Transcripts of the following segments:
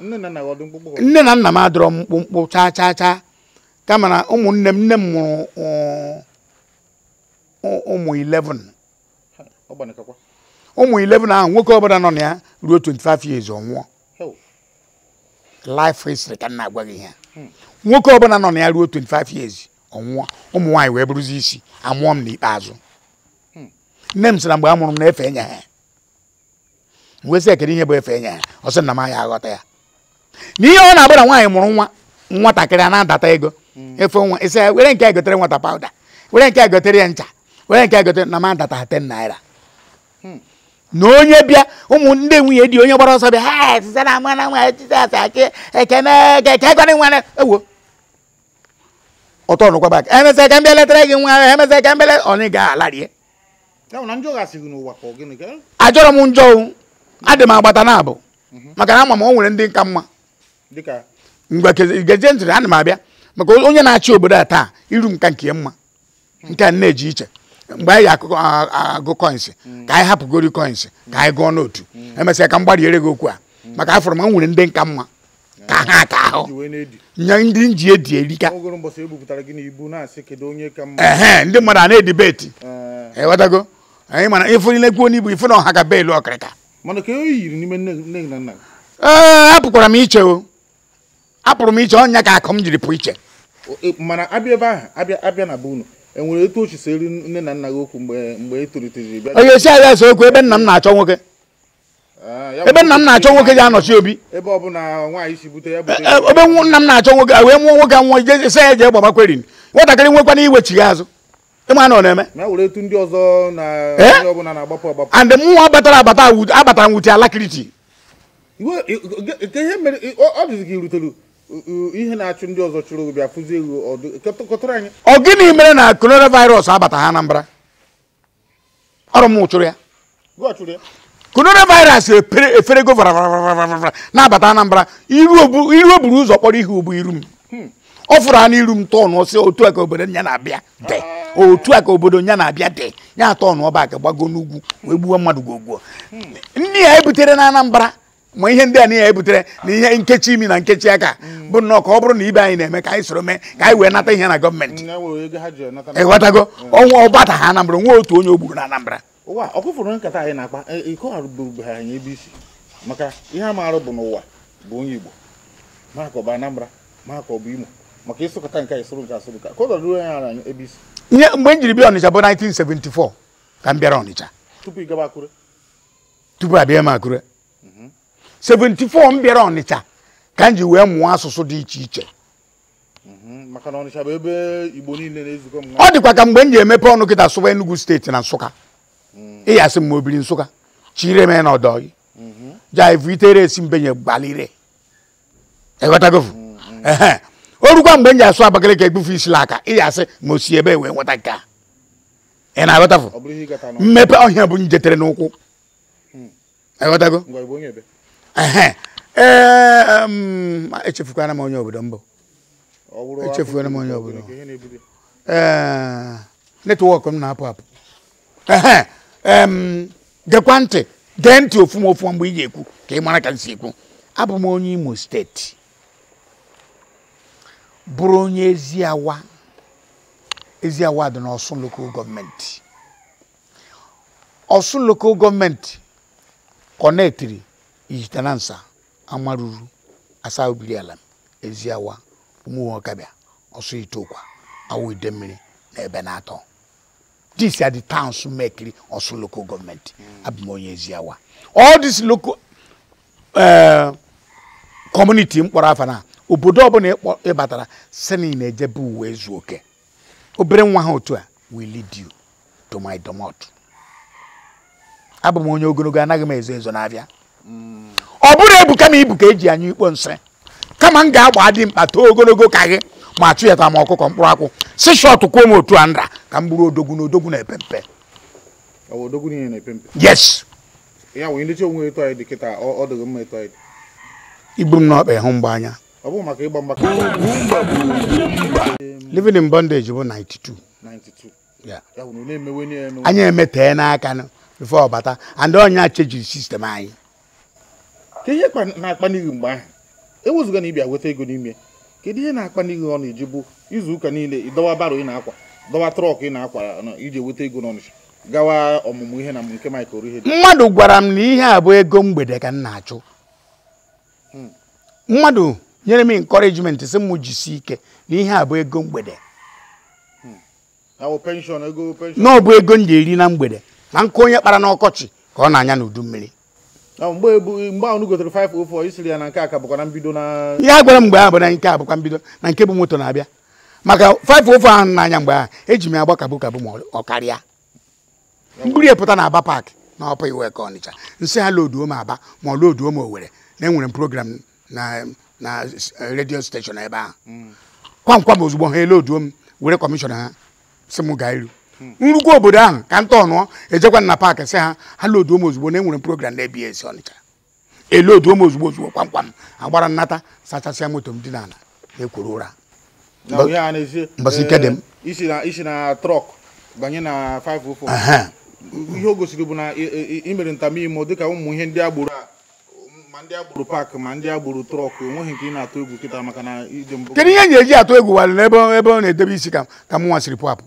nne na nna m adọrọ m mkpụmkpụ chaa chaa chaa kama na ụmụnne m nne m mụrụ uh, uh, ụmụ 11 ụmụ 11 ahụ nwoke ọbụla nọ na ya ruo 25 years ọnwụọ hmm. nwoke ọbụla nọ na ya ruo 25 years ọnwụọ ụmụ nwaanyị wee bụrụzi isi amụọ m n'ikpeazụ hmm. nne m sị na mgbe a mụrụ m na-efe nya ha. wesị ekele ihe bụ efe enye ya ọ sị na m ya aghọta ya na ihe ọ na-abụ na nwaanyị mụrụ nwa nwatakịrị a na-adata ego efe nwa isi ya were nke a gotere nwata pawuda were nke a gotere ya ncha were nke a gotere na m adata ten naira na onye bịa ụmụ ndị nwunye dị onye gbara ọsọ bịa ha etisa na ama na nwa jizọs akị ekene eke gọrị nwa ewo ọtọ nụkwa bak emesịa ka m bịa letara gị nwa emesịa ka m bịa letara onye ga-alarie ajọrọ m njọ adị m agbata na mhm. maka na ama m o ndị nka mma mgbe gezie ntụrụ ana m abịa maka onye na-achị obodo a taa iru nka nke mma hmm. nke a na-eji iche mgbe anyị agụ koins hmm. ka anyị hapụgori koins ka anyị gụọ n'otu hmm. emesịa ka m gbariere gị okwu a maka afọrọ m nwere ndị nka mma ka ha ka ahụ nye ndị nji edi erika e ndị mmadụ a na-edibeti ịghọtago anyị mana ịfụnile kwuo n'ibu ifụ na ọha ka beelu ọkịrịka mana ka o yiri n'ime nne na nna ee eh, apụkwara m iche o apụrụ m iche ọnya ka akụ m jiri pụ iche e, mana abịa ebe ahụ abịa abịa na be unu enwere etu ochi si eri nne na nna gị okwu mgbe mgbe etolitejiri bịa ọ ga-esi okwu ebe nna m na-achọ nwoke ah, ebe nna m na-achọ nwoke ya anọchi obi ebe ọbụla nwaanyị si bute ya eh, ebe nna m na-achọ nwoke wee mụọ nwoke a nwa jesi ya jee gbagbakweri nwatakịrị nwekwana iwechi ya azụ ịma na ọ na-eme eh? and mụnwa batara abata abatara nwute alakiriti ọ gịnị mere na coronavirus abata ha Anambra ọrụ m chụrụ ya coronavirus eferego varavaravara na-abata Anambra iru oburu ụzọ kpọrọ ihe ugbu iru m hmm. ọ fụrụ ha n'iru m tọọ n'ọsị otu a ka obodo nya na-abịa dee otu a ka obodo ya na-abịa dị ya atọ n'ọba aka gbago n'ugwu wee mmadụ gwogwuo ndị ya ebutere na Anambra ma ihe ndị a niile ebutere na ihe nkechi imi na nkechi aka bụ nnọọ ka ọ bụrụ na ibe anyị na-eme ka anyị soro mee ka anyị wee nata ihe na gọọmenti ịghọtago ọnwa ọgbata ha Anambra otu onye o gburu na Anambra e, e, maka ihe a maara bụ n'ụwa bụ onye Igbo ma bụ Anambra ma bụ Imo maka ịsụkọta nke a mhm. mhm. ka ruo ya na ebi isi. mgbe m bịa bụ 1974 ka m bịara tupu ị akure tupu m akure 74 m bịara ka m ji wee mụọ asụsụ dị iche iche maka na bụ ebe igbo na ọ dịkwa ka mgbe m emepe ọnụ kita sụwa enugu steeti na nsụka ịyasị nsụka chire na orukwa mgbe m ji asụ Abakaliki egbufe isi aka ị ga-asị ma osi ebe e wee nweta nke a ị na-aghọtafụ mmepe ọhịa bụ njetere n'ụkwụ hmm. aghọtago e, echefukwana m onye obodo mbụ echefukwana m onye obodo e, netwọk m na-apụ apụ gekwa ntị gee ntị ofu m mgbe ị ga-ekwu ka ị mara ka m si ekwu abụ m onye Imo steeti bụrụ onye ezi awa ezi awa dị n'Ọsụn Lokal Gọọmenti Ọsụn Lokal Gọọmenti kọnetiri ijitanansa amaruru asa obiri ala ezi awa ụmụnwe ọkabịa itokwa awụ ide na ebe na-atọ dis adị the towns mekiri ọsụ Lokal Gọọmenti abụm onye ezi awa all this local eh, community mkpọrọ afọ na obodo ọbụla ịbatara sinin na-ejebe uwe ezu oke obere nwa ha otu a will lead you to my domot abụ m onye ogologo anaghị m ezo ezo n'abịa hmm. ọ bụrụ ebuka kama ibu ka eji anya ikpo nsị kama m ga-agba dị mkpa too ogologo ka gị ma atụnyeta m ọkụkọ mkpụrụ akwụ si shọt kwuo m otu a nra ka m bụrụ odogwu na odogwu na-epe mpe yes igbu m n'ọkpa ịhụ mgbe anya ọ bụghị maka ịgba mgba living in bondage bụ 92 anyị emetee n'aka before ọbata and onye chejiri sistem anyị ka ihe na-akpa n'ihi mgbe ahụ ewezụga na ịbịa weta ego n'ime kedu ihe na-akpa n'ihi ọ na-eji bụ izu ụka niile ịdọwa baro ị na-akwa dọwa trọk ị na-akwa iji weta ego n'ọnịcha gawa ọmụmụ ihe na nke Mike ihe. mmadụ gwara m na ihe a bụ ego mgbede ka m na-achụ hmm. mmadụ nyere m encouragement sị m jisi ike na ihe a bụ ego mgbede na ọ bụ ego m ga-eri na mgbede na nkụ onye kpara n'ọkọchị ka ọ na-anya n'udu mmiri ihe a gwara m mgbe ahụ bụ na nke a bụkwa mbido na nke bụ moto na-abịa maka 504 ahụ n'anya mgbe ahụ eji m ya gbakabụ kabụ ma ọ karịa mkpụrụ epụta na aba paakị na ọpa iwe ka ọnịcha nsị ha loduo m aba ma ọ loduo m owere na enwere m program na na eh, redio steshọn ebe ahụ kwankwa m ozugbo ha eloduo m were kọmishọna ha si m gaa iru obodo ahụ ka m tọọ ejekwa na paakị sị ha ha loduo m ozugbo na enwere m program na ebs ọnịcha eloduo m ozugbo ozugbo kwamkwa m agbara nnata sachasịa moto m dị n'ala na-ekwuru ụra mbọsị ike dị m eh, isi na trọk banye na 504 ihe o gosiri bụ na imere ntamimo dịka ụmụ ihe ndị agbụrụ a ndị agburu paakị ma ndị agburu trọkụ enweghị nke ị na-atụ egwu kịta maka na ije mbụ kedu ihe na-eji atụ egwu walụ n'ebe ebe ọ na-edebe isi ka ka hmm. e m nwa siri pụapụ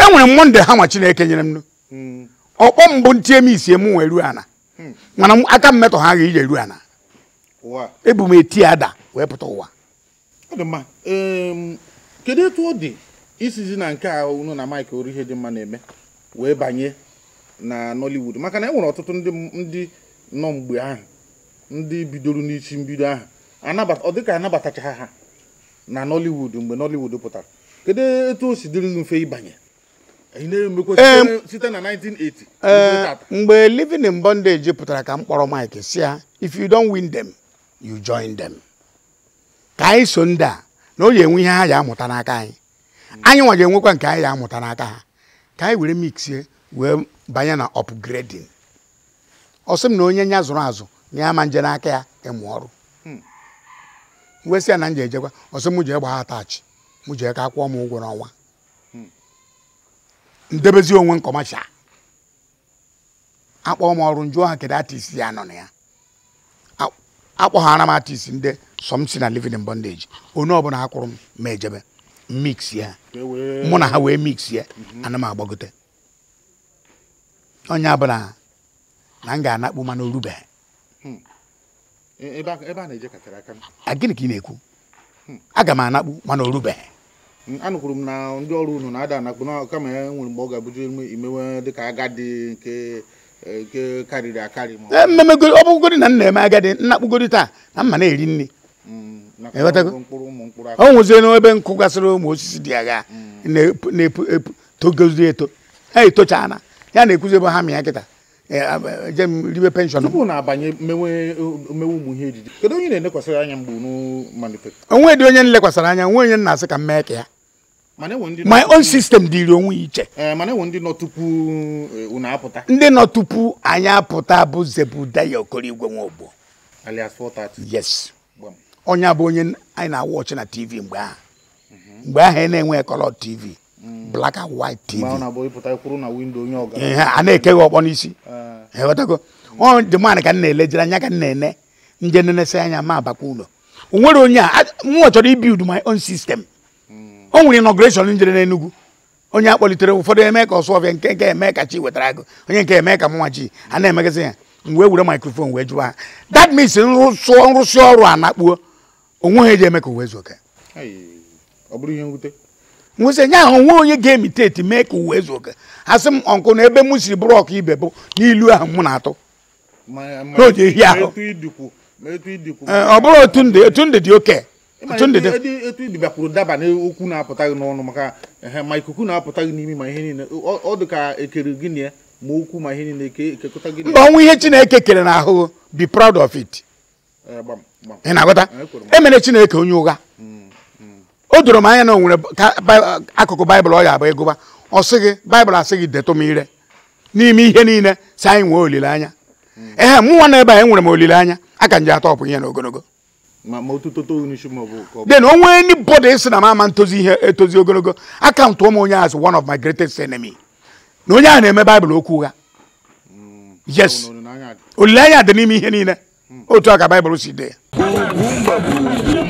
enwere m monde ha nwa chineke nyere m hmm. ọkpọ mbụ ntie m isi m wee ruo ana hmm. mana aka m metọ ha ga ije ruo ana ebu m eti ada wee pụta ụwa kedu etu ọ dị isizi na nke a unu na Mike ihe dị mma na-eme wee banye na Nollywood maka na enwere ọtụtụ ndị nọ mgbe ahụ ndị bidoro n'isi mbido ahụ ọ dị ka anabatacha ha na nollywood mgbe nollywood pụtara kedu etu o si dịrị gị mfe ịbanye site na 1980 eh, mgbe living in bondage pụtara ka m kpọrọ mike si ya if you don't win them you join them ka anyị so ndị a na o ji enwe ihe ha ji amụta n'aka anyị anyị nwa ga-enwekwa nke anyị ji amụta n'aka ha ka anyị were mixie wee banye na upgrading ọ sị m na onye nya zụrụ azụ na ya ma nje n'aka ya ịmụ ọrụ hmm. wesị na m ji ejekwa ọ sị m jee gbaa atachi m jee ka kwụọ m ụgwọ n'ọnwa hmm. ndebezi onwe nkọmacha akpọ m ọrụ njụọ ha kedu atisi ya nọ na ya akpọghara m atisi ndị sọm si na livin bondage onye ọbụla ha kwụrụ m ma ejebe mix ya mụ na ha wee mix ya anam agbagote onye abụla na m ga-anakpu mana orubeghị gịnị ka ị na-ekwu hmm. aga m anakpu mana hmm, orubeghị anụkwuru m na ndị ọrụ unu na-ada e, nwere mgbe ọ ga-abụju imewe dịka agadi nke e, karịrị ọ e, bụgodi na m na agadi nnakpụgodi taa na mma na-eri nri ọ hmm, nwụzie nkụ gasịrị ụmụ osisi dị agha na epu togozi eto ha etochala ya na-ekwuzi ebe ha mịa kịta eje eh, ah, eh, m ribe penshọn tupu na-abanye mmewe eh, ụmụ ihe ejije kedu onye na-elekwasịrị anya mgbe unu manifest onwe dị onye nlekwasịrị anya onwe onye nna asị ka m mee ka ya my own system dịrị onwe iche ndị nọ tupu unu apụta ndị tupu anyị apụta bụ zebu Zebudaya Okorigwe Nwogbo alias 430 yes onye bụ onye anyị na-awọchi na tv mgbe ahụ mhm. mgbe ahụ ị na-enwe kọlọ tv black and white tv ihe a na-ekeghị ọkpọ n'isi ghọtago eh. ọ dị mmadụ ka m na-elejere anya ka m na-ene nje nenesi anya ma abakwa onwere o nwere onye a nwa chọrọ ibild my own system hmm. o nwere inauguration njere n'Enugu onye a kpọlitere ụfọdụ eme ka ọsụ ọbịa nke nke eme ka chi wetara onye nke eme ka mụnwa chi a na-emegazị ya m were microphone wee jụọ ha that means nrụsị ọrụ a na-akpuo onwe ha eji eme ka uwe ọ bụrụ ihe mwute nwụsị nye ahụ nwe onye ga-emiteti mee ka uwe ezu oke asị m ọnkụ na ebe mụ siri bụrụ ọkụ ibe bụ n'ilu ahụ mụ na-atụ n'oge ehi ahụ ọ bụrụ otu ndị dị oke otu ndị dị daba mba ọnwụ ihe Chineke kere n'ahụ be proud of it ị na emere e Chineke onye ụgha o doro m anya na onwere akụkụ baịbụl ọ ya abụ ịgụba ọ sị gị baịbụl asị gị detụ m ire n'ime ihe niile si anyị nwee olileanya ehe m nwa na anyị nwere m olileanya aka nje atọ ọpụ ihe na ogologo then o nwee anybody ị na m ama ntozi ihe etozi ogologo akaụntụ ụmụ onye as one of my greatest enemy na onye ahụ na-eme baịbụl okwu ụgha mm. yes olileanya dị n'ime ihe niile mm. otu a ka baịbụl si dee ya